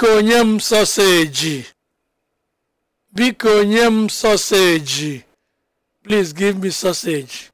biko nye m soseji biko nye m